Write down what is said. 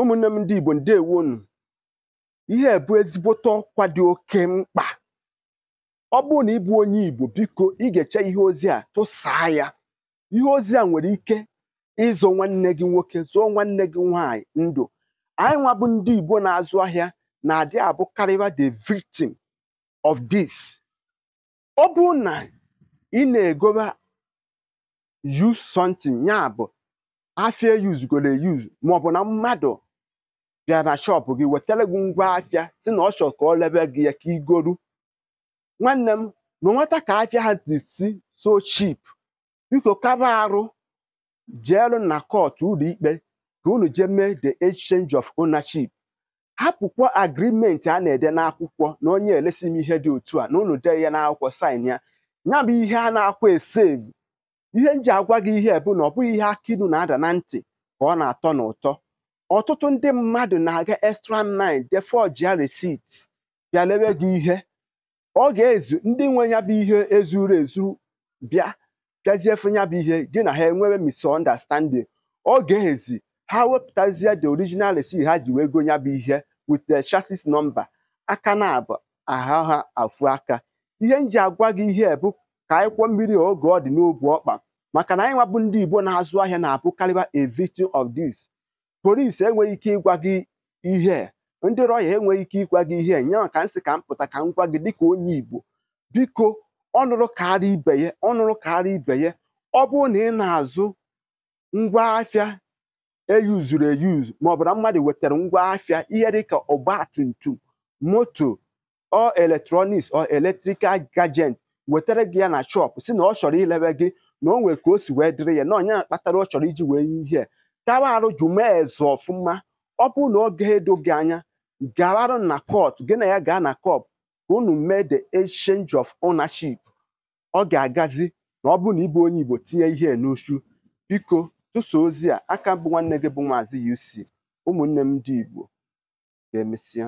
ụmụnne m ndị Igbo ndewonu ihe bụ ezigbote ọkwa dị oke mkpa ọ bụrụ na ị bụ onye Igbo biko ị ga-eche ihe ozi a tụsaa ya ihe ozi a nwere ike ịzụ nwanne gị nwoke zụọ nwanne gị nwaanyị ndụ anyị nwa bụ ndị Igbo na-azụ ahịa na-adị abụ karịba the victim of this ọ bụrụ na ị na-egoba use something ya bụ afia yuzugoro eyuz maọbụ na mmadụ bịa na shọpụ gị wetara gị ngwa afịa si na ọ chọrọ ka ọ lebe gị ya ka nwanne m na nweta ka afịa ha dị si so chip biko kaba arụ jeelu na kọtụ ụlọikpe ka unu jee mee the exchange of ownership hapụkwa agrimenti a na-ede n'akwụkwọ na onye elesi m ihe dị otu a na unu dee ya n'akwụkwọ sain ya ya bụ ihe a na-akwa esevu ihe m ji agwa gị ihe bụ na ọ bụghị ihe akinu na-ada na ntị ka ọ na-atọ na ụtọ ọtụtụ ndị mmadụ na-aga extra mile je forge receipt bịa lewe gị ihe ọ ga-ezu ndị nwe ya bụ ihe ezuru ezu bịa bịazie ya bụ ihe gị na ha enwewe misunderstanding ọ ga-ezi ha wepụtazie the original receipt ha ji wee go ya bụ ihe with the chassis nọmba aka na abụ aha ha afụ aka ihe m ji agwa gị ihe bụ ka akwụkwọ mmiri oge ọ dị n'obu ọkpa maka na anyị nwabụ ndị Igbo na-azụ ahịa na-abụkarịba a victim of this polisi enweghị ike ịgwa gị ihe ndị rọya enweghị ike ịgwa gị ihe nyaa ka m ka m pụta ka m gwa gị dịka onye igbo biko ọnụrụ karịa ibe ya ọnụrụ karịa ibe ya ọ bụrụ na ị na-azụ ngwa afịa eyuzuru eyuzu ma ọ bụrụ mmadụ wetara ngwa afịa ihe dịka ọgba tum tum moto ọ eletrọniks ọ eletrikal gajent wetara gị ya na chọpụ si na ọ chọrọ ilewe gị na o nwere ka o si wee dịrị ya na onye na ọ chọrọ iji wee ihe tawa arụ mee eze ọfụma ọ bụrụ na oge edo gị anya gawarụ na kọt gị na ya gaa na court ka unu mee the exchange of ownership ọ ga-agazi na ọ bụrụ na ịbụ onye Igbo tinye ihe n'uchu biko tụsa ozi a aka bụ nwanne gị bụ Maazị UC ụmụnne m ndị Igbo ga emesia.